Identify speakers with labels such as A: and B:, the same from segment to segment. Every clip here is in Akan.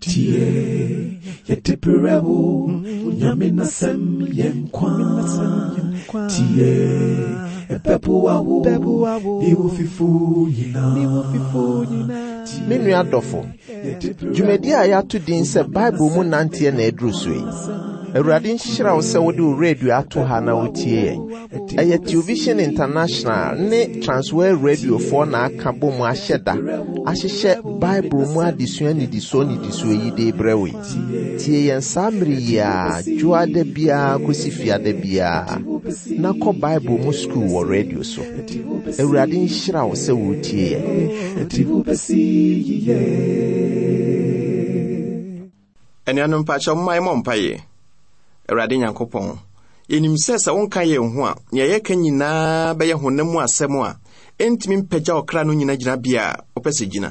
A: tie yɛtepere wo nyame nasɛm yɛ nkwa tie ɛbɛboa wo ne wo fifo nyinaa me nua dɔfo dwumadi a yɛato din sɛ bible mu nanteɛ na ɛduru so yi awurade nhyira wo sɛ wode wo radio ato ha na wotie yɛn ɛyɛ television international ne transwor radiofoɔ na aka bɔ mu ahyɛ da ahyehyɛ bible mu adesua nidisuo nidisuo yi de brɛ wo yi tie yɛn saa mmere yi a dwoa da biara kɔsi fiada biara na kɔ bible mu skuul wɔ radio so awurade nhyira wo sɛ wotie yɛn
B: anuanom pakyɛ momma yɛmmɔ mpaeɛ awurade nyankopɔn yɛnim sɛ sɛ wonka yɛn ho a nea yɛka nyinaa bɛyɛ honam mu asɛm a ɛntumi mpagya ɔkra no nyina gyina bia a wɔpɛ sɛ gyina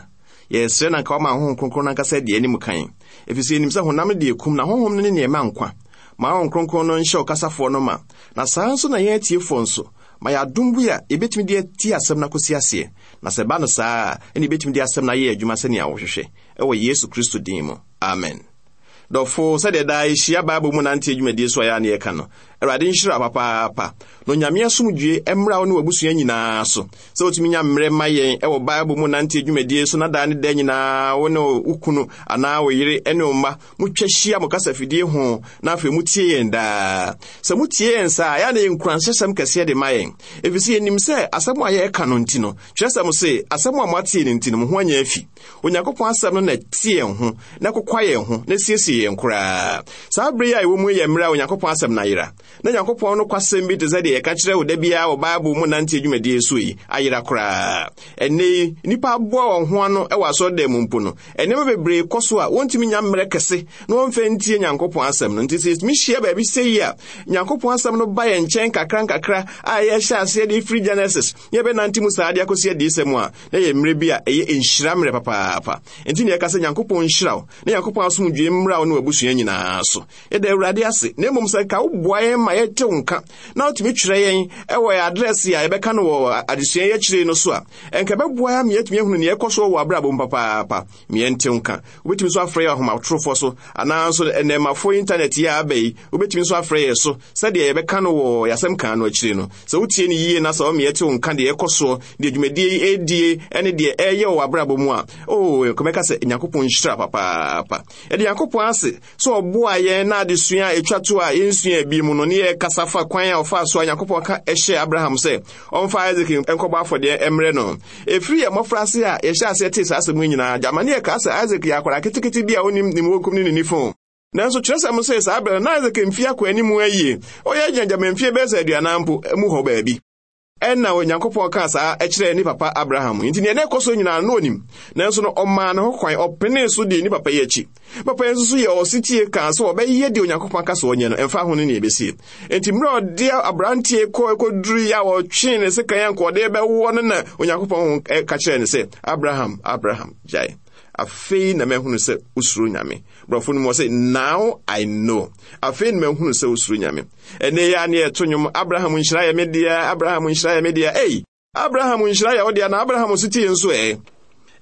B: yɛsrɛ na nka wama honhom kronkron no ankasa deɛ anim kan ɛfiri yɛnim sɛ honam deɛ kum na honhom no ne neɛ nkwa ma honhom kronkron no nhyɛ ɔkasafoɔ no ma na saa nso na yɛn atiefoɔ nso ma yɛadom bi a yɛbɛtumi de ati asɛm no akɔsi aseɛ na sɛ ba no saa a ɛne yɛbɛtumi de asɛm no ayɛ adwuma sɛnea wɔhwehwɛ ɛwɔ yesu kristo din mu amen dɔfo sɛdeɛ daa yɛhyia bible mu nante adwumadie so a yɛ a yɛka no awurade nhyira papaapa na onyame asomdwe mmra wo ne wabusua nyinaa so sɛ wotumi nya mmerɛ ma yɛn ɛwɔ bible mu nante adwumadie so na daa ne da nyinaa wo ne wo kunu anaa wo yere ne wo mma motwa hyia mo kasafidie ho na afei motie yɛn daa sɛ motie yɛn saa ɛa na yɛnkuranhyɛsɛm kɛseɛ de ma yɛn ɛfiri sɛ yɛnim sɛ asɛm a yɛreka no nti no kyerɛsɛm se asɛm a moatee no nti no mo ho anyɛ afi onyankopɔn asɛm no na ɛte yɛn ho na kokwa yɛn ho na siesie yɛn koraa saa bere yi a ɛwɔ mu yɛ mmerɛ a onyankopɔn asɛm no ayera na nyankopɔn no kwasɛm bi te sɛ deɛ yɛka kyerɛ wo da biara wɔ bible mu nante adwumadie so yi ayera koraa ɛnnɛ yi nnipa aboa wɔn ho ano wɔ asɔredan mu mpo no ɛnneɛma bebree kɔ so a wɔntumi nya mmerɛ kɛse na wɔmfa ntie nyankopɔn asɛm no nti sɛ yɛtumi hyia baabi sɛ yi a nyankopɔn asɛm no ba yɛn nkyɛn kakra nkakra a yɛhyɛ aseɛ de firi genesis yɛbɛnante mu saa de akɔsi adiisɛ mu a na yɛ mmerɛ bi a ɛyɛ nhyira mmerɛ papaapa nti ne yɛka sɛ nyankopɔn nhyira wo na nyankopɔn asomdwue mmra wo ne w'abusua nyinaa so yɛda awurade ase na mmom sɛ ka woboa yɛn ma yɛgye wo nka na wotumi twerɛ yɛn ɛwɔ adrɛse a yɛbɛka no wɔ adesua yi akyire no so a ɛnka ɛbɛboa ma yɛatumi ahunu neɛ ɛkɔ so wɔ abrabɔ mu papaapa meɛnte wo nka wobɛtumi nso afrɛ yɛ ahomatorofoɔ so anaa nso ɛnɛmafoɔ intanet yi a aba yi wobɛtumi nso afrɛ yɛ so sɛdeɛ yɛbɛka no wɔ yɛasɛm kaa no akyire no sɛ wotie no yie na sɛ wɔmeɛte wo nka deɛ ɛkɔ soɔ deɛ dwumadie ɛdie ɛne deɛ ɛyɛ wɔ abrabɔ mu a o kɔmɛka sɛ nyankopɔn nhyira papaapa ɛde nyankopɔn ase sɛ ɔboa yɛn na adesua a ɛtwa to a yɛnsua bi mu no ɔne yɛ kasa fa kwan a ɔfaa so a nyankopɔn ka ɛhyɛ abraham sɛ ɔmfa isak nkɔbɔ afɔdeɛ mmerɛ no ɛfiri yɛ mmɔfraase a yɛhyɛ aseɛ tee saa asɛm yi nyinaa gyamane yɛ kaa sɛ isak yɛ akwara ketekete bi a onim nimwɔnkum ne ne nifo nanso kyerɛsɛm sɛ saa berɛ no na isak mfie akɔ anim ayie ɔyɛ agyinagyama mfie bɛɛ sɛ aduanan mpo mu hɔ baabi ɛna onyankopɔn kaa saa ɛkyerɛɛ ne papa abraham nti nea na ɛkɔ so nyinaa no onim nanso no ɔmaa ne ho kwan ɔpenee so dii ne papa yi akyi papa yi nso so yɛ ɔsetie kaa sɛ ɔbɛyɛ deɛ onyankopɔn ka sɛ ɔnyɛ no ɛmfa ho no ne ɛbɛsie enti mmerɛ ɔde aberanteɛ kɔ ɛkɔduru yi a wɔtwee ne sekan a nkɔɔde bɛwɔ no na onyankopɔn ho ka kyerɛɛ ne sɛ abraham abraham gyae afei na mahunu sɛ wosuro nyame borɔfo no mu sɛ now i know afei na mahunu sɛ wosuro nyame ɛnɛ yɛ a ne yɛto nnwom abraham nhyira yɛ me dea abraham nhyira yɛ me dea ei abraham nhyira yɛ wo dea na abraham nso tie nso ɛ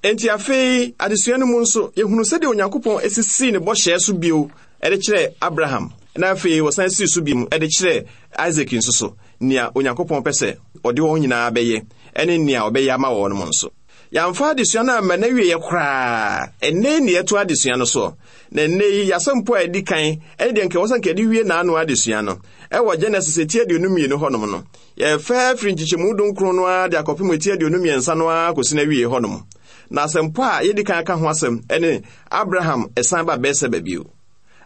B: enti afei adesua no mu nso yɛhunu sɛdeɛ onyankopɔn asisii ne bɔhyɛɛ so bio ɛde kyerɛ abraham na afei wɔsan sii so biom ɛde kyerɛ isaac nso so nea onyankopɔn pɛ sɛ ɔde wɔn nyinaa bɛyɛ ɛne nea ɔbɛyɛ ama wɔn mo nso yɛamfa adesua no amma n'awieɛ koraa ɛnnɛ ne yɛto adesua no soɔ na ɛnnɛ yi yɛasɛmpo a ɛdi kan ɛne deɛ nkɛwɔ sɛ nkɛde wie n'ano adesua no ɛwɔ genesis eti aduonu mmienu hɔnom no yɛfɛ firi nkyekyɛmu dunkron no ara de akɔpem eti aduonu mmiɛnsa no ara kɔsi n'awie hɔnom na asɛmpo a yɛdi kan aka ho asɛm ɛne abraham ɛsan ba bɛɛsɛ baabio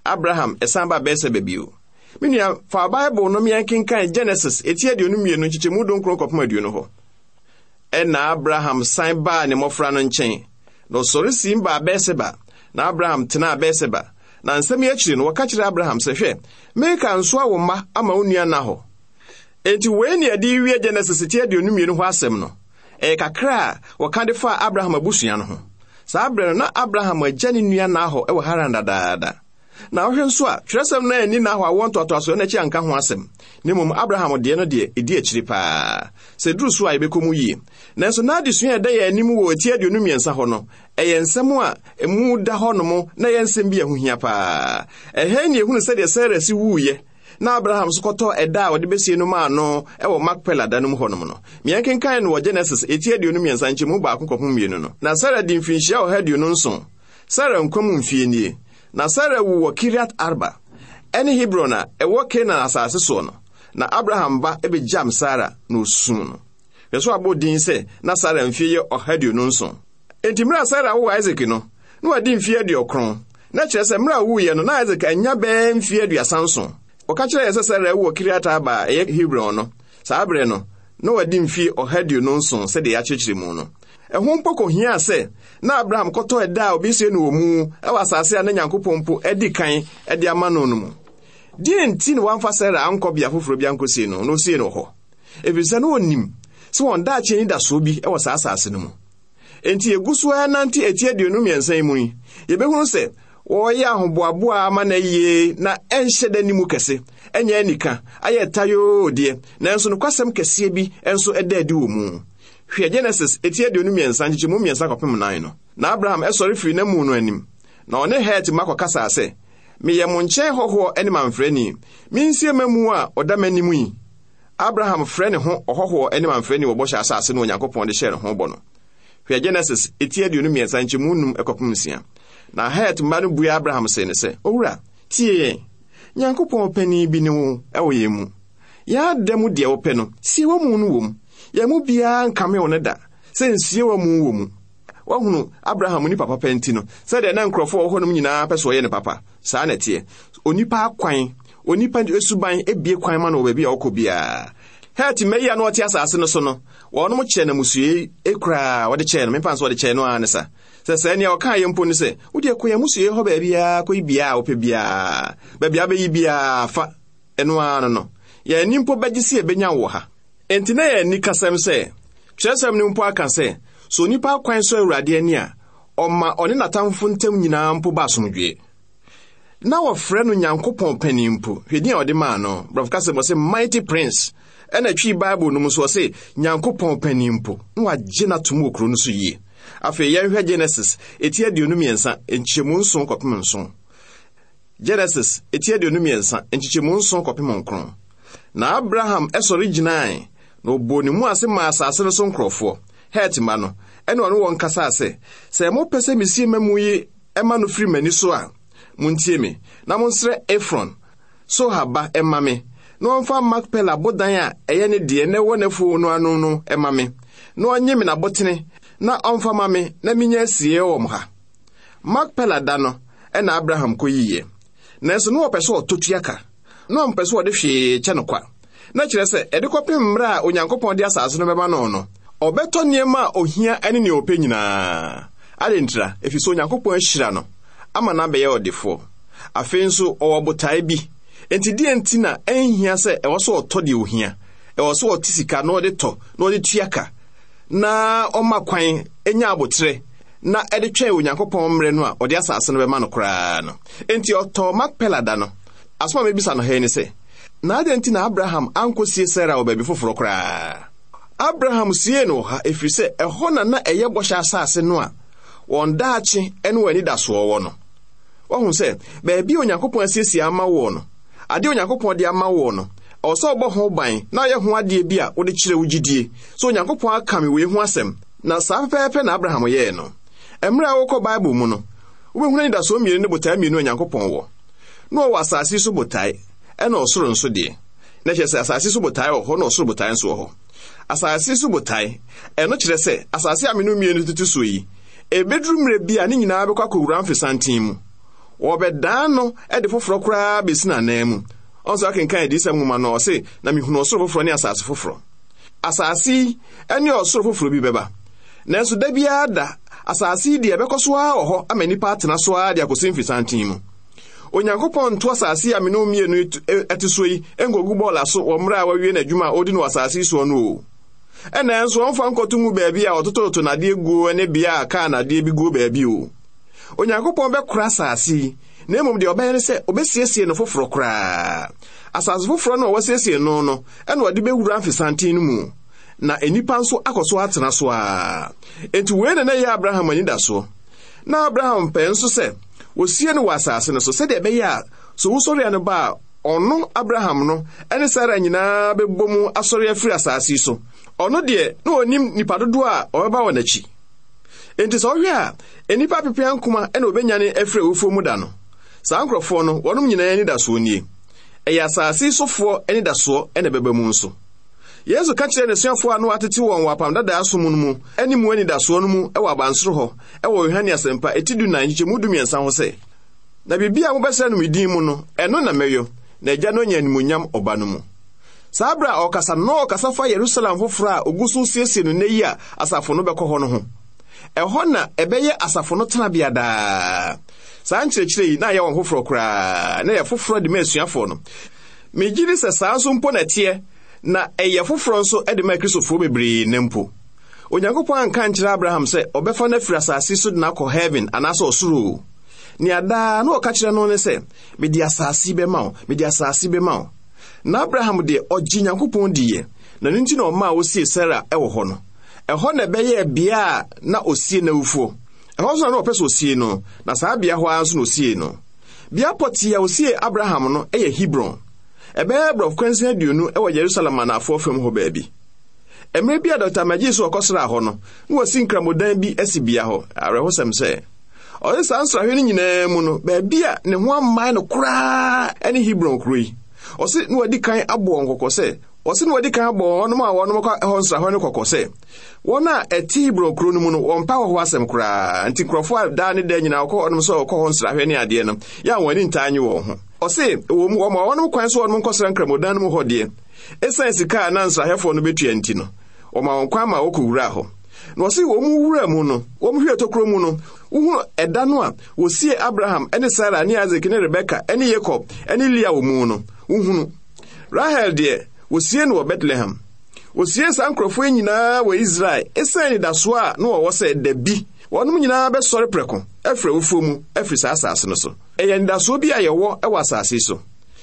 B: abraham ɛsan ba bɛɛsɛ baabio menua fa bible no meɛnkenkan genesis eti aduonu mmienu nkyekyɛmu dunkron kɔpem aduonu hɔ na abraham san baa ne mmɔfra no nkyɛn na ɔsɔre sim baa bɛseba na abraham tenaa bɛseba na nsɛm yi akyiri no wɔka kyerɛ abraham sɛ hwɛ mereka nso a wo mma ama wo nua na hɔ enti wei ne ɛde wie genesis ti aduonu mmienu hɔ asɛm no ɛyɛ kakra a wɔka de faa abraham abusua no ho saa berɛ no na abraham agya ne nua na hɔ wɔ haran dadaada na wohwɛ nso a twerɛsɛm no ani nahɔ a wɔ ntoatoasoɔ no akyi anka ho asɛm na mmom abraham deɛ no deɛ ɛdi akyiri paa sɛ duru so a yɛbɛkɔ mu yie nanso n'adesua a ɛda yɛn anim wɔ ati aduonu mmiɛnsa hɔ no ɛyɛ nsɛm a mu da hɔ nom na ɛyɛ nsɛm bi a ho hia paa ɛhɛn ne ehunu sɛdeɛ sara si wuiɛ na abraham nso kɔtɔ ɛda a wɔde bɛsie no maa no ɛwɔ makpela da no mu hɔnom no mmea kenkan no wɔ genesis ɛti aduonu mmiɛnsa mu baako kɔho mmienu no na sara de mfirinhyia ɔha aduonu nson sara nkwa mu mfie nie na sara wowɔ kiriat arba ɛne hebron a ɛwɔ kanaan asase soɔ no na abraham ba ebegyam sara na osum no hwɛ so abɔ din sɛ na sara mfie yɛ ɔha aduonu nson enti mmerɛ a sara wowɔ isak no na wadi mfie aduɔkron na kyerɛ sɛ mmerɛ a wuyɛ no na isaac anya bɛɛ mfie aduasa nson ɔka kyerɛ yɛ sɛ sara wowɔ kiriat arba a ɛyɛ hebron no saa berɛ no na wadi mfie ɔha aduonu nson sɛdeɛ yɛakyekyere mu no ɛho mpo kohia sɛ na abraham kɔtɔ ɛda a obesie no wɔ mu ɛwɔ asase a na nyankopɔn mpo adi kan de ama no no mu deɛ nti ne wamfa sara ankɔ bea foforɔ bi ankɔsie no na osie no hɔ ɛfiri sɛ na ɔnim sɛ wɔn daakye ni dasoɔ bi ɛwɔ saa asase no mu enti yɛgu so ara nante ati aduonu mmiɛnsa yi mu yi yɛbɛhunu sɛ wɔreyɛ ahoboaboa ama na yie na ɛnhyɛ da ni mu kɛse ɛnyɛ anika ayɛ tayoo deɛ nanso nokwasɛm kɛseɛ bi nso ɛda adi wɔ mu hwɛ genesis eti aduonu mmiɛnsa nkyekye mu mmiɛnsa kɔpem nan no na abraham ɛsɔre firi na mu no anim na ɔne het ma kɔkasaa sɛ meyɛ mo nkyɛn hɔhoɔ ne mamfrɛni mensie ma a ɔda m'anim yi abraham frɛ ne ho ɔhɔhoɔ ne mamfrɛni wɔ bɔhyɛ asase no onyankopɔn de hyɛɛ ne ho bɔ no hwɛ genesis eti aduonu mmiɛnsa mu num ɛkɔpem nsia na het mma no bue abraham se ne sɛ owura tie yɛn nyankopɔn panin bi ne wo ɛwɔ yɛn mu mu deɛ wopɛ no yɛn mu biara nkame wo ne da sɛ nsie wɔ mu wɔ mu wahunu abraham nipa papa nti no sɛdeɛ na nkurɔfoɔ wɔ hɔnom nyinaa pɛ sɛ ɔyɛ ne papa saa na ɛteɛ onipa akwan onipa esuban ebie kwan ma no wɔ baabi a ɔkɔ biara mmayi na ɔte asase no so no wɔnom kyɛ no musue ekura wɔde kyɛ no mepaa nso wɔde kyɛ no ara ne sa sɛ sɛ nea ɔka yɛ mpo ne sɛ wode kɔ yɛ musue hɔ baabiaa kɔyi biaa wopɛ biaa baabi abɛyi biaa fa ɛno ara no no yɛn ha enti na yɛ nikasɛm sɛ kyerɛsɛm no mpo aka sɛ so onipa akwan so awurade ani a ɔma ɔne n'atamfo ntam nyinaa mpo ba asomdwoe na wɔfrɛ no nyankopɔn panin mpo hwɛ din a ɔde maa no brɔfo kasɛm ɔsɛ mighty prince ɛna twii bible no mu so ɔse nyankopɔn panin mpo na wagye no atom wɔ kuro no so yie afei yɛnhwɛ genesis ɛti aduonu mmiɛnsa nkyɛmu nson kɔpem nson genesis ɛti aduonu mmiɛnsa nkyɛmu nson kɔpem nkron na abraham ɛsɔre gyinae na oboni mu ase maa asase no so nkurɔfoɔ het ma no ɛne ɔne wɔn sɛ mopɛ sɛ ma mu yi ɛma no firi m'ani so a montie me na monsrɛ efron so haba ɛma me na ɔmfa makpela abodan a ɛyɛ ne na ɛwɔ n'afuo no na ɔnye me na ha makpela da no ɛna abraham kɔ nanso na wɔpɛ sɛ ɔtɔ tuaka na ɔmpɛ sɛ ɔde hwee kyɛ no kwa na-ekyerɛ sɛ ɛde kɔpem mmerɛ a onyankopɔn de asase no bɛba no no ɔbɛtɔ nneɛma a ohia ne nea ɔpɛ nyinaa adentira ɛfiri sɛ onyankopɔn ahyira no ama no abɛyɛ ɔdefoɔ afei nso ɔwɔ botae bi enti deɛ nti na ɛnhia sɛ ɛwɔ sɛ ɔtɔ deɛ ohia ɛwɔ sɛ ɔte sika na ɔde tɔ na ɔde tua ka na ɔma kwan ɛnya abotire na ɛde twɛn onyankopɔn mmerɛ no a ɔde asase no bɛma no koraa no enti ɔtɔ makpela da no asoma mebisa no hɛ ne sɛ na adịn nti na abraham ankwụsie sara wɔ baabi koraa abraham sie na ɔha efiri sị ɛhɔ na na ɛyɛ bɔhyɛ asase no a wɔn daakye ne wɔn anidasoɔ wɔ no wɔhu sɛ baabi onyankopɔn asiesie ama no onyankopɔn de ama no ɔbɔ ho ban na ɔyɛ ho adeɛ bi a wode kyerɛ wo gyidie so onyankopɔn akame wei ho asɛm na saa pɛpɛɛpɛ na abraham yɛe no mmerɛ a wokɔ bible mu no wobɛhunu anidasoɔ mmienu ne botae mmienu onyankopɔn wɔ na ɔwɔ asase so botae ɛna ɔsoro nso deɛ na kyerɛ sɛ asase so botae wɔ hɔ na ɔsoro botae nso wɔ hɔ asase so botae ɛno kyerɛ sɛ asase a meno mmienu tutu so yi ebeduru mmerɛ bi a ne nyinaa bɛkɔ akɔwura mfesanten mu wɔbɛdan no ɛde foforɔ koraa besi n'anan mu ɔnso akenkan adiyisɛm nwoma no ɔse na mihunu ɔsoro foforɔ ne asase foforɔ asase yi ne ɔsoro foforɔ bi bɛba nanso da biara da asase yi deɛ ɛbɛkɔ so ara wɔ hɔ ama nnipa atena so ara de akɔsi mfesanten mu onyankopɔn nto asase a mene mmienu e-, ɛte so yi nkogu bɔɔla aso wɔ mmerɛ a wawie n'adwuma a odi no nso ɔmfa nkɔto mu baabi a nadeɛ a kaa nadeɛ bi guo baabi o onyankopɔn bɛkora asase yi na mmom deɛ ɔbɛyɛ ne sɛ ɔbɛsiesie no foforɔ koraa asase foforɔ no a no no ɛna ɔde mu na nnipa nso na na abraham na abraham nso wɔsie no wɔ asase no so sɛdeɛ ɛbɛyɛ a sɛ wosɔre a ba a ɔno abraham no ne sara nyinaa bɛbɔ mu asɔre afiri asase yi so ɔno deɛ na ɔnim nnipa dodoɔ a ɔbɛba wɔ n'akyi enti sɛ ɔhwɛ a nnipa apepea nkoma ɛna obɛnyane afiri awufuo mu da no saa nkurɔfoɔ no wɔnom nyinaa anidasoɔ nie ɛyɛ asase yi sofoɔ anidasoɔ ɛna ɛbɛba mu nso yesu ka kyerɛɛ n'asuafoɔ a na watete wɔn wɔ apamdadaa so mu no mu ne mu anidasoɔ no mu wɔ abansoro hɔ wɔ yohane asɛmpa ɛti du nan nkyɛmu dumiɛnsa ho sɛ na biribi a mobɛsrɛ no medin mu no ɛno na mɛyɔ na agya no nya animonyam ɔba no mu saa bere a ɔkasa na ɔkasa fa yerusalem foforɔ a ogu so siesie no nnɛ yi a asafo no bɛkɔ hɔ no ho ɛhɔ na ɛbɛyɛ asafo no tenabea daa saa nkyerɛkyerɛ yi na ayɛ wɔn foforɔ koraa na yɛ foforɔ de ma asuafoɔ no megye di sɛ saa nso mpo na ɛteɛ na ɛyɛ foforɔ nso de maa kristofoɔ bebree ne mpo onyankopɔn anka nkyerɛ abraham sɛ ɔbɛfa no afiri asase so de nakɔ heaven anaasɛ ɔsoro nea daa na ɔka kyerɛ no ne sɛ mede asase bɛma wo mede asase bɛma wo na abraham deɛ ɔgye nyankopɔn diiɛ na nti na osie sara wɔ hɔ no ɛhɔ na ɛbɛyɛɛ bea a na osie n'awufoɔ ɛhɔ nso na na ɔpɛ sɛ osie no na saa bea hɔ ara osie no a osie abraham no ebe aborɔfokwansi aduonu wɔ yerusalem anafoɔ fam hɔ baabi mmerɛ bi a dɔkta dr so ɔkɔsraa hɔ nọ na nkramodan bi asi bea hɔ awerɛhosɛm sɛ ɔne saa nyinaa no baabi a ne ho no koraa yi ɔse na wɔadi kan abɔ wɔn sɛ ɔse a wɔnom kɔ hɔ no kɔkɔ a ɛte hebron kuro no mu no wɔmpa nti nkurɔfoɔ a daa ne da nyinaa wɔkɔ hɔnom sɛ wɔkɔ hɔ ɔse wɔ mu ɔma ɔnom kwan so ɔnom nkɔsra nkramodan no mu hɔ deɛ ɛsiane sika a na nsrahɛfoɔ no bɛtua nti no ɔma wɔn kwan ma wɔkɔwuraa hɔ na ɔse wɔ mu wura mu no wɔm hwɛ tokuro mu no wohunu ɛda no a wɔsie abraham ne sara ne isak ne rebeka ne yakob ne lia wɔ mu no wohunu rahel deɛ wɔsie no wɔ betlehem wɔsie saa nkurɔfoɔ nyinaa wɔ israel ɛsiane nidasoɔ a na wɔwɔ sɛ da bi wɔnom nyinaa bɛsɔre prɛko ɛfiri awufuo mu ɛfiri saa asase no so ɛyɛ nidasoɔ bi a yɛwɔ ɛwɔ asase yi so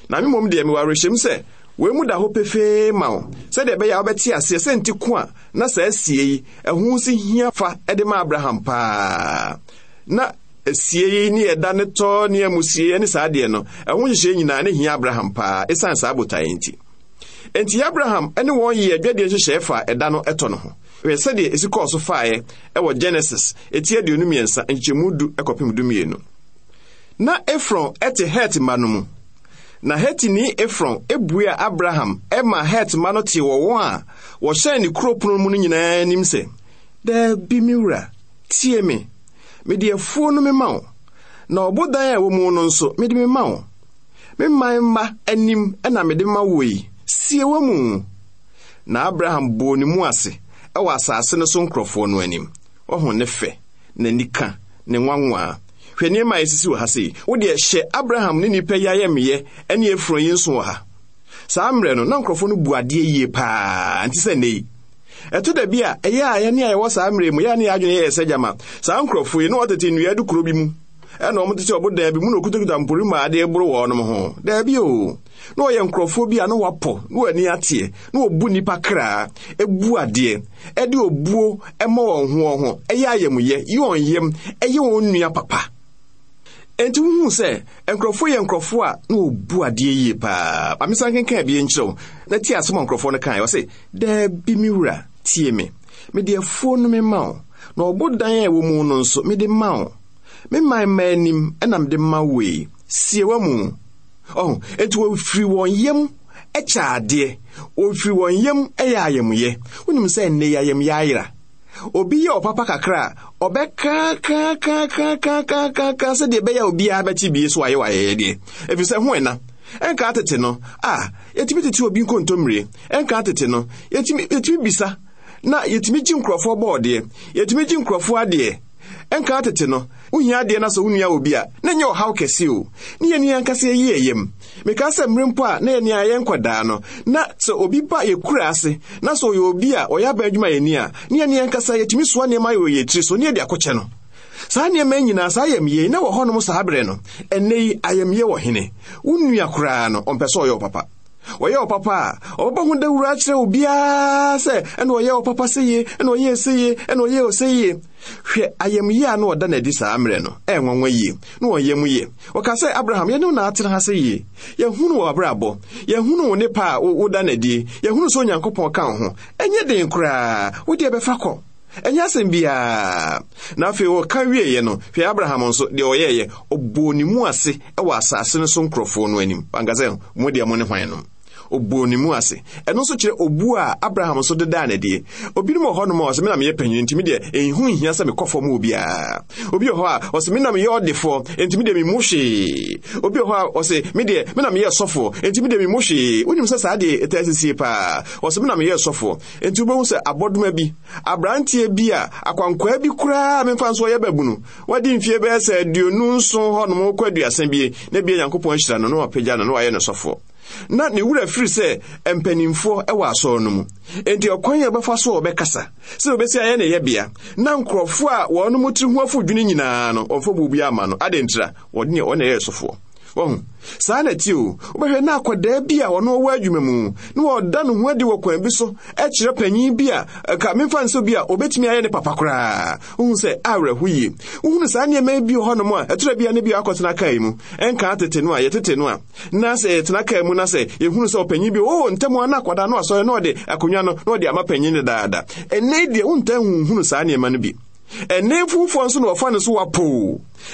B: na me mmom deɛ mewɔ awerɛhyɛm sɛ wɔn mu da hɔ pefee ma wo sɛdeɛ ɛbɛyɛ a wobɛte aseɛ sɛ nti ko a na saa asie yi ɛho si hia fa ɛde ma abraham paa na asie yi ne ɛda ne tɔ ne amusie ne saa deɛ no ɛho nhyehyɛ nyinaa ne hia abraham paa ɛsiane saa botaeɛ nti enti abraham ɛne wɔn yɛ adwadeɛ nhyehyɛe fa ɛda no ɛtɔ no ho hwɛ sɛdeɛ ɛsi kɔɔ so faeɛ ɛwɔ genesis ɛti aduonu mmiɛnsa nkyɛmu du ɛkɔpem dumienu na efron ɛte het ma no mu na hetini efron ebuaa abraham ɛma het ma no te wɔ wɔn a wɔhyɛn ne kuro pono mu no nyinaa anim sɛ daabi me wura tie me mede afuo no mema wo na ɔbodan a ɛwɔ mu no nso mede mema wo me man mma anim ɛna mede ma wo yi sie wɔ mu na abraham bɔɔ ne mu ase ɛwɔ asase no so nkurɔfoɔ no anim ɔho ne fɛ n'anika ne nwanwaa hwɛ nneɛma a ɛsisi wɔ ha sei wodeɛ hyɛ abraham ne nnipa yi ayɛmeyɛ ɛne afuro nso wɔ ha saa mmerɛ no na nkurɔfoɔ no bu adeɛ yie paa nti sɛ nnɛ yi ɛto da bi a ɛyɛ a yɛne a yɛwɔ saa mmerɛ mu yɛa ne yɛ adwene yɛyɛ sɛ gyama saa nkurɔfoɔ yi na wɔtete nnua de kuro bi mu ɛna ɔmo te sɛ ɔbo dan bi mu na okutakuta mpori mu a adeɛ boro wɔ ɔnom ho daabi o na ɔyɛ nkurɔfoɔ bi a na wapɔ na wɔani ateɛ na obu, nnipa kraa ɛbu adeɛ ɛde obuo ɛma wɔn ho wɔn ho ɛyɛ ayamyɛ yi wɔn yam ɛyɛ wɔn nua papa enti wohu sɛ nkurɔfoɔ yɛ nkurɔfoɔ a na wɔbu adeɛ yie paa amesa nkenkan bi nkyerɛw na tie asɛm a nkurɔfoɔ no kae ɔse daabi me wura tie me mede afuo no me ma wo na ɔbo dan a ɛwɔ mu no nso mede ma wo me mman mma anim ɛnam de mma wei sie mu ɔho enti wɔfiri wɔn yam ɛkyɛ adeɛ wɔfiri wɔn yam ɛyɛ wonim sɛ obi yɛ ɔpapa kakra a ɔbɛkakakakakakaka sɛdeɛ obi tete no wohia adeɛ no sɛ wo nua wɔ bi a na nyɛ ɔhaw kɛse o ne yɛne ankasa yɛyi ɛyam mekaa sɛ mmere mpo a na yɛne a yɛnkɔdaa no na sɛ obi ba yɛkura ase na sɛ ɔyɛ obi a ɔyɛ aba adwuma yɛni a ne yɛne ankasa yɛtumi soa nneɛma yɛ ɔyɛ tiri so ne yɛde akɔkyɛ no saa nneɛma nyinaa saa ayamyie na wɔ hɔnom saa berɛ no ɛnnɛ yi ayamyie wɔ hene wo nua koraa no ɔmpɛ sɛ ɔyɛ ɔpapa wɔyɛ ɔpapa a ɔbɛbɔ ho dawura akyerɛ wo biara sɛ ɛna ɔyɛ ɔpapa seye ɛna ɔyɛ seye ɛna ɔyɛ ɔseye hwɛ ayamyie a na ɔda n'adi saa mmerɛ no ɛnwanwa yie na ɔyɛ mu yie ɔka sɛ abraham yɛne wo naatena ha sɛ yie yɛhunu wɔ abrabɔ yɛhunu wo ne a woda n'adi yɛhunu sɛ onyankopɔn ka wo ho ɛnyɛ den koraa wodeɛ bɛfa kɔ ɛnyɛ asɛm biaa na afei wɔka wieeɛ no hwɛ abraham nso deɛ ɔyɛeɛ ɔbɔɔ ne mu ase wɔ asase no so nkurɔfoɔ no anim ankasɛ mo deɛ mo ne hwan no oboo ne mu ase ɛno nso kyerɛ obuo a abraham nso dedaa n'adie obinom wɔ hɔnom a ɔsɛ menam yɛ panyini ntumi deɛ ɛnhu nhia sɛ mekɔ fam obiara obi wɔ hɔ a ɔsɛ menam yɛ ɔdefoɔ ntumi deɛ memu hwee obi wɔ hɔ a ɔsɛ me deɛ menam yɛ sɔfoɔ ntumi deɛ memu hwee wonim sɛ saa deɛ ɛtaa sisie paa ɔsɛ menam yɛ sɔfoɔ nti wobɛhu sɛ abɔdoma bi aberanteɛ bi a akwankwaa bi koraa memfa nso ɔyɛ babu no wadi mfie bɛyɛ sɛ aduonu nson hɔnom kɔ aduasa bie na bie nyankopɔn hyira no na wapagya no na wayɛ no sɔfoɔ na ne wura firi sɛ mpanimfoɔ wɔ asɔr no mu enti ɔkwan a ɔbɛfa so a ɔbɛkasa sɛ obesi ayɛ ne yɛbea na nkurɔfoɔ a wɔn mo tiri ho afodwene nyinaa no ɔmfa biribiara ama no wɔde ɔna wɔn saa n'akyi o wobɛhwɛ na akwadaa bi a ɔno ɔwɔ adwuma mu na wɔda no ho adi wɔ kwan bi so ɛkyerɛ panyin bi a ka mmefa nso bi a obetumi ayɛ ne papa koraa wohu sɛ awerɛho yie wohunu saa nneɛma bi wɔ hɔnom a ɛtorɛ bia ne bia akɔtena kae mu ɛnka tete no a yɛtete no a na sɛ yɛtena kae mu na sɛ yɛhunu sɛ ɔpanyin bi oo ntam a na akwadaa no asɔre na ɔde akonnwa no na ɔde ama panyin no daadaa ɛnɛ deɛ wontaa hunhunu saa nneɛma no bi ɛnɛmfumfoɔ nso na wɔfa no so wapo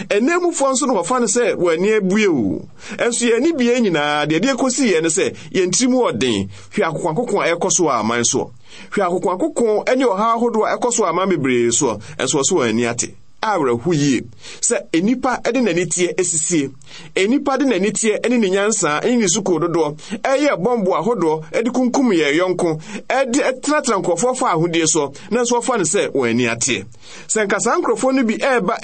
B: ɛnɛmufoɔ nso na wɔfa no sɛ wɔani abue ɛnso yɛn ani bie nyinaa deɛ ɛde kɔsi yɛn no sɛ yɛn tirim ɔden hwɛ akoko a ɛkɔ so aman soɔ hwɛ akoko ne ɔhaw ahodoɔ a ɛkɔ so aman bebree soɔ ɛnso wɔso wɔn ani ate awerɛho yie sɛ enipa de n'ani teɛ enipa de n'ani teɛ ne ne nyansaa ne ne sukuu dodoɔ ɛyɛ bɔmbo ahodoɔ de kunkum yɛ yɔnko ɛde tenatena nkurɔfoɔ fa ahodeɛ soɔ nanso wɔfa no sɛ wɔn ani ateɛ sɛ nka saa nkurɔfoɔ no bi ɛreba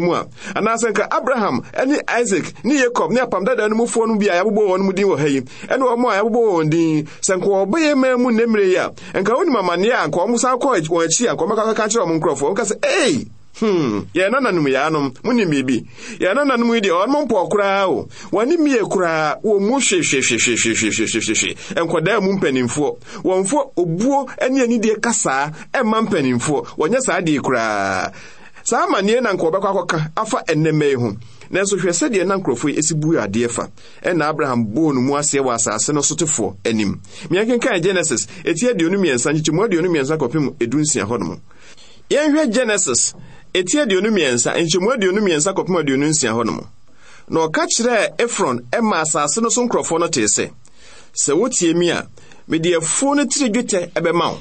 B: mu a anaasɛ nka abraham ne isaac ne yakob ne apam dada no mufoɔ no bi a yɛabobɔ wɔn mu din wɔ ha yi a yɛabobɔ wɔn din sɛ nka wɔbɛyɛ mmaa mu yi a nka amanneɛ a a nka wɔn nkurɔfoɔ hmm yɛna nanom yaanom monim biribi yɛna nanom yi deɛ ɔnom mpɔ koraa o wɔne mie koraa wɔ mu hwehwehwehwehwehwehwehwehwe nkɔdaa mu mpanimfoɔ wɔmfo obuo ne anidie kasaa ɛmma mpanimfoɔ wɔnyɛ saa deɛ koraa saa amanneɛ na nka wɔbɛkɔ akɔka afa ɛnnɛma yi ho nanso hwɛ sɛdeɛ na nkurɔfoɔ esi bu buu adeɛ fa ɛna abraham bɔɔ no mu aseɛ wɔ asase no sotefoɔ anim meɛkenkan genesis ɛti aduonu mmiɛnsa nkyekyɛmu aduonu mmiɛnsa kɔpem edu nsia hɔnom yɛnhwɛ genesis ɛti aduonu mmiɛnsa nkyɛmu aduonu mmiɛnsa kɔpem aduonu nsia hɔ nom na ɔka kyerɛɛ efron ma asase no so nkurɔfoɔ no tee sɛ sɛ wotie mi a mede afuo no tiri dwetɛ ɛbɛma wo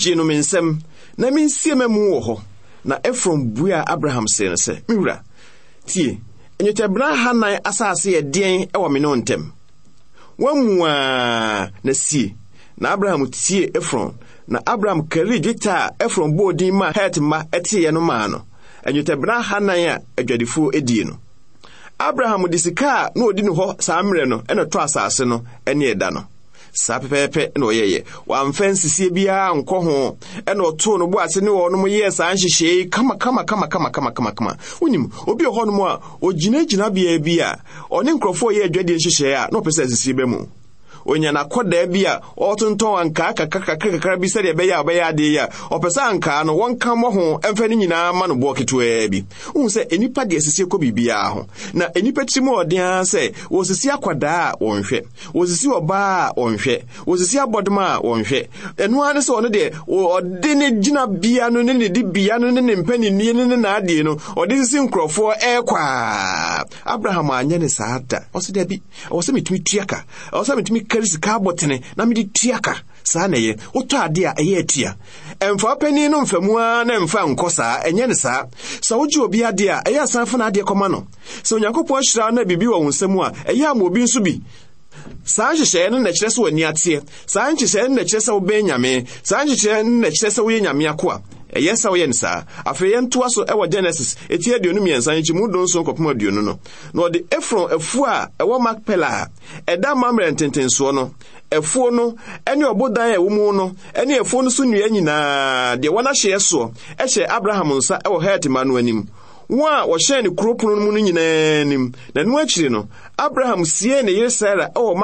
B: gye no me nsɛm na mensie ma mu wɔ hɔ na efron buaa abraham see no sɛ me wura tie nnwetɛbena hanan asase yɛ den ɛwɔ me ne ntɛm woamu a na sie na abraham tie efron na abraham kari dwetɛ a efron bɔɔ din maa het mma teeɛ no maa no nnwetɛbena hanan a adwadifoɔ adie no abraham de sika a na odi no hɔ saa mmerɛ no ɛna ɛtɔ asase no ne ɛda no saa pɛpɛɛpɛ na ɔyɛyɛ wamfa nsisie biara nkɔ ho ɛna ɔtoo no ne wɔnom yɛɛ saa nhyehyɛe wonim obi a bi a ɔne nkurɔfoɔ yɛ adwadeɛ nhyehyɛe a na ɔpɛ sɛ mu onya na akɔdaa bi a kaka kaka kakrakakra bi sɛdeɛ ɛbɛyɛ a ɔbɛyɛ adeɛ yi a ọ sɛ nka no wɔnka ka ho mfe no nyinaa ma no boɔ ketewaa bi wohu sɛ nnipa deɛ esisi kɔ biribiaa ho na nnipa tiri ɔden ara asị wɔsisi akwadaa a nhwe wɔsisi ɔbaa a nhwe wɔsisi abɔdoma a wɔnhwɛ ɛno ara ne sɛ ɔno deɛ ọ dị gyina bia no ne ne di bia no ne ne mpanini na adị naadeɛ ọ dị sisi nkurɔfoɔ ɛrekɔ a abraham anyɛ ne saa da ɔsɛ dabi ɔwɔ sɛ metumi tuaka ɔwɔ sɛ metumi ka ɔtɔre sika abɔtene na mede tuaka ka saa na ɛyɛ wotɔ ade a ɛyɛ atia ɛmfa panin no mfamu ara na ɛmfa nkɔ saa ɛnyɛ ne saa sɛ wogye obi adeɛ a ɛyɛ asan fa adeɛ kɔma no sɛ onyankopɔn ahyira na biribi wɔ wo nsɛm a ɛyɛ ama obi nso bi saa nhyehyɛe no na kyerɛ sɛ w'ani ateɛ saa nhyehyɛe no na kyerɛ sɛ wobɛn nyame saa nhyehyɛe no na kyerɛ sɛ woyɛ nyame akoa ɛyɛ sɛ woyɛ ne saa afei yɛntoa so ɛwɔ genesis ɛti aduonu mmiɛnsa nkyi do nso nkɔpem aduonu no na ɔde efron afuo a ɛwɔ makpela a ɛda ntentensoɔ no afuo no ɔbodan a ɛwɔ mu no ne afuo no so nnua nyinaa deɛ wɔn ahyeɛ soɔ ɛhyɛ abraham nsa ɛwɔ hetima no anim wɔn a wɔhyɛn ne kuro no nyinaa anim na no abraham sie ne yere sara ɛwɔ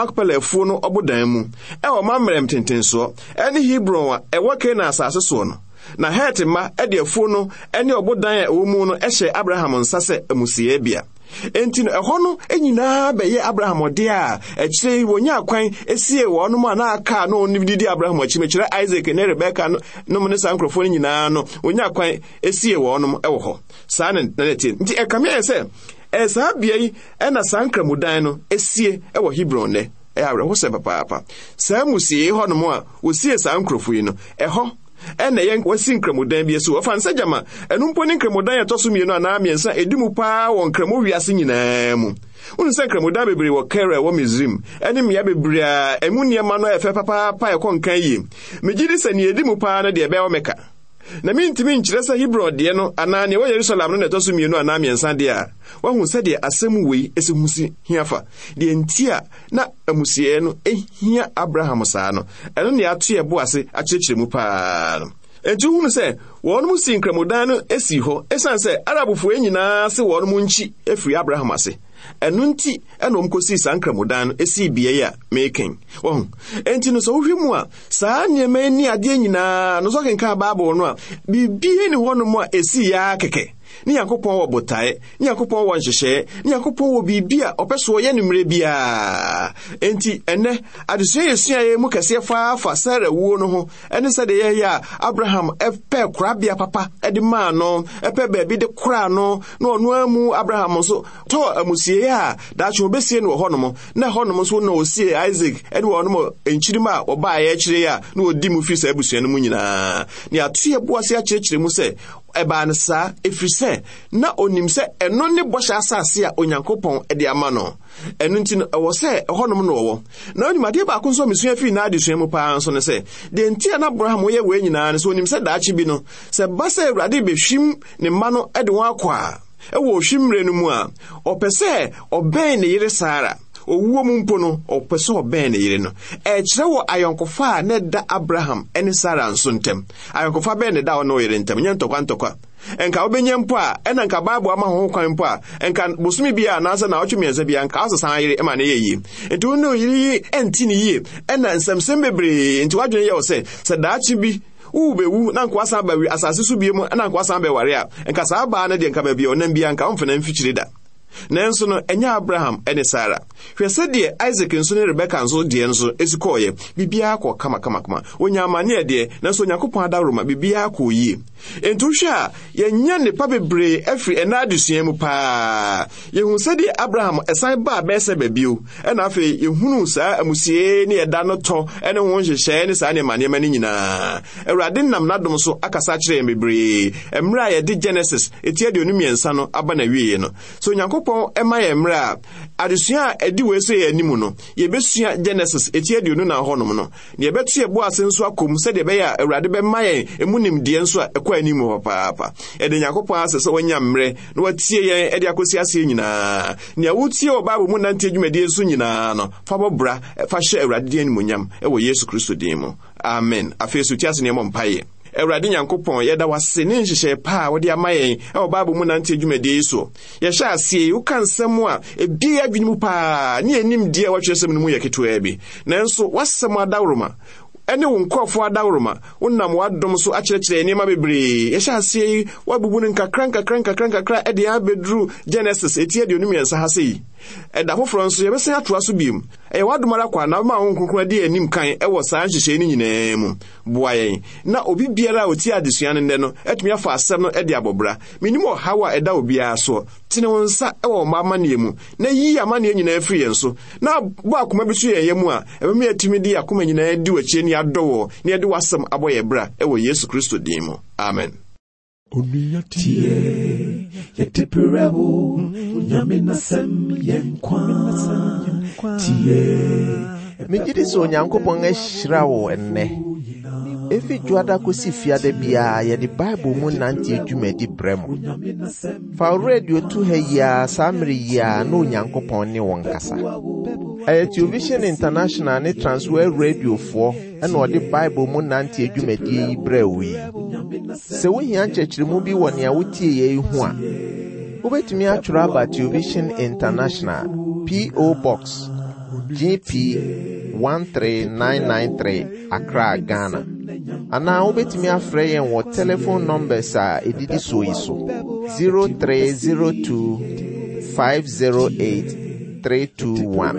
B: na het mma ɛde afuo no ne ɔbodan a ɛwɔ mu no ɛhyɛ abraham nsa sɛ amusiɛ enti no ɛhɔ no e nyinaa bɛyɛ abraham ɔde a akyire yi wonya akwan esie wɔnom a n'aka na ɔno didi abraham akyi mekyerɛ isaac ne rebeka no nom ne saa nkurɔfoɔ no nyinaa no wonya akwan esie wɔnom ɛwɔ hɔ saa na na tie nti ɛkame yɛ sɛ ɛyɛ bea yi ɛna saa nkramodan no esie ɛwɔ hebron nɛ ɛyɛ awerɛho papaapa saa musie hɔnom a wosie saa nkurɔfoɔ yi no ɛhɔ ɛna ɛyɛ wasi nkramodan bi so wɔfa nsa gyama ɛno mpo ne nkramodan ɛtɔ so mmienu anaa mmiɛnsa ɛdi mu paa wɔ nkramo wiase nyinaa mu wonu sɛ nkramodan bebree wɔ kara wɔ misrim ɛne mmea bebree a ɛmu nneɛma no ɛfɛ papaapa ɛkɔ nkan yie megye di sɛ neɛ ɛdi mu paa no deɛ ɛbɛyɛ wɔ na mentumi nkyerɛ sɛ hebron deɛ no anaa nea ɛwɔ yerusalem no na ɛtɔ so mmienu anaa mmiɛnsa deɛ a woahu sɛdeɛ asɛm wei ɛsɛ hu si hia fa deɛ nti a na amusieɛ no ɛhia abraham saa no ɛno ne ato yɛ ase akyerɛkyerɛ mu paa no enti wohunu sɛ wɔnom si nkramodan no si hɔ ɛsiane sɛ arabfoɔ nyinaa se wɔnom nkyi afiri abraham ase ɛno nti ɛnom kɔsii saa nkramodan no ɛsii bea a meken ɔho enti no sɛ wohwɛ mu a saa nneɛma ani adeɛ nyinaa no sɛ ɔkenkaa bible no a biribie ne hɔnom a ɛsiiaa kɛkɛ ne nyankopɔn wɔ botae ne nyankopɔn wɔ nhyehyɛe ne nyankopɔn wɔ biribi a ɔpɛ so ɔyɛ no mmerɛ enti ɛnnɛ adesua yɛsuaeɛ mu kɛseɛ faa fa sara wuo no ho ɛne sɛdeɛ yɛyɛ a abraham ɛpɛ korabea papa de maa no ɛpɛ baabi de koraa no na ɔno a mu abraham nso tɔɔ amusiei a daakye wɔbɛsie no wɔ hɔnom na hɔnom nso na ɔsie isaac ne wɔnom nkyirim a wɔbaeɛ akyire a na wɔdi mu firi saa abusua no mu nyinaa ne atoyɛ boase akyerɛkyerɛ mu sɛ ɛbaa no saa ɛfiri sɛ na onim sɛ ɛno ne bɔhyɛ asase a onyankopɔn de ama no ɛno nti no ɛwɔ sɛ ɛhɔnom na ɔwɔ na onyumadeɛ baako nso a mesua fii n'adesua mu paa nso no sɛ deɛ nti a na abraham wɔyɛ wei nyinaa no sɛ onim sɛ daakye bi no sɛ ba sɛ awurade bɛhwim ne mma no de wɔn akɔ a ɛwɔ ohwimmerɛ no mu a ɔpɛ sɛ ɔbɛn ne yere saara owuo mu mpo no ɔpɛ sɛ ɔbɛn ne yere no ɛkyerɛ wɔ ayɔnkofa a na ɛda abraham ne sara nso ntɛm ayɔnkofa bɛn ne da ɔne ɔyere ntɛm nyɛ ntɔkwa ntɔkwa nka wobɛnya mpo a ɛna nka bible ama kwan mpo a nka bosome anaasɛ na ɔtwe mmiɛnsa bia nka wosesan yere ma ne yɛ yie nti yi ne yie bebree nti woadwene yɛ wo sɛ sɛ bi na ba asase so bie mu a nka nanso no ɛnyɛ abraham ne sara hwɛ sɛdeɛ isak nso ne rebeka nso deɛ nso ɛsi kɔɔeɛ biribiara kɔ kamakamakama onya amanneɛ deɛ nanso onyankopɔn adaworoma biribiara kɔɔ yie enti wohwɛ a yɛnya nnepa bebree afiri ɛna adesua mu paa yɛhu sɛdeɛ abraham ɛsan baa bɛɛsɛ baabio ɛna afei yɛhunu saa amusie ne ɛda no tɔ ne ho nhyehyɛe ne saa nneɛma nneɛma no nyinaa awurade nam n'adom so akasa kyerɛ yɛn bebree mmerɛ a yɛde genesis ɛti aduonu mmiɛnsa no aba na wieɛ no so onyankopɔn onyankopɔn ɛma yɛn mmerɛ a adesua a ɛdi wei sɛ yɛn anim no yɛbɛsua genesis eti aduonu na hɔnom no na yɛbɛto yɛbo ase nso akɔm sɛdeɛ ɛbɛyɛ a awurade bɛma yɛn emu nimdeɛ nso a ɛkɔ anim hɔ paapa ɛde nyankopɔn asɛ sɛ wɔnya mmerɛ na wɔatie yɛn ɛde akɔsi aseɛ nyinaa nea wotie wɔ bible mu nante adwumadie nso nyinaa no fa bɔbra fa hyɛ awurade din animonyam ɛwɔ yesu kristo din mu amen afei so tie ase nneɛma mpaeɛ awurade nyankopɔn yɛda wase ne nhyehyɛ pa a wode ama yɛn ɛwɔ bible mu nante adwumadie yi so yɛhyɛ aseɛ yi woka nsɛm a ɛbie adwene mu paa ne yɛnim deɛ wɔatwerɛsɛm no mu yɛ ketewaa bi nanso woasɛm adaworoma ɛne wo nkurɔfoɔ adaworoma wonam w'adom so akyerɛkyerɛ nneɛma bebree yɛhyɛ aseɛ yi woabubu no nkakra nkakra nkakra nkakra ɛde abɛduru genesis ɛti aduonum yɛnsa ha sɛ yi ɛda foforɔ nso yɛbɛsan atoa so biom ɛyɛ w'adom ara kwa na ma wo nkonkora de anim kan ɛwɔ saa nhyehyɛe no nyinaa mu boa yɛn na obi biara a ɔtie adesua no nnɛ no atumi afa asɛm no de abɔbra menim ɔhaw a ɛda obiara soɔ tene wo nsa wɔ ɔma amanneɛ mu na yiyi amanneɛ nyinaa firi yɛn so na bɔ akoma bi so yɛn yɛ mu a ɛbɛma yɛatumi de akoma nyinaa di w'akyi ani adɔ wɔ na yɛde w'asɛm abɔ yɛ bra ɛwɔ yesu kristo din mu amen
A: tie yɛde berɛ wo nyame nasɛm yɛ nkwa tie megye di sɛ onyankopɔn ahyira wo ɛnnɛ efi dwoada kɔsi fiada biara yɛde bible mu nante adwumadi brɛ mo fa wo radio tu ha yi a saa mmere yi a na onyankopɔn ne wɔn kasa ɛyɛ television international ne transwer radiofoɔ ɛna ɔde bible mu nante adwumadie yi brɛ wo yi sɛ wohia nkyerɛkyerɛmu bi wɔ nea wotie yei ho a wubetumi atwerɛ aba tuovision international po box gp 13993 accra ghana anaa wubetumi afrɛ yɛn wɔ telephone numbers a edidi so yi so 0302 508 321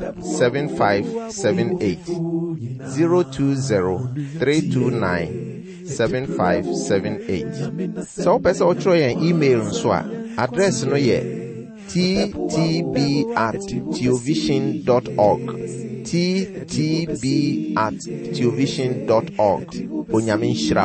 A: 7578 020 329 7578 sɛ wopɛ sɛ wɔkyerɛ yɛn email nso a adres no yɛ ttb at teovision org ttb at teovision org onyame nhyira